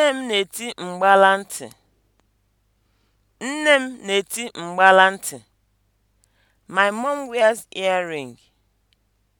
Nne m na-eti mgbala ntị. Nne m na-eti mgbala ntị. My mom wears earring.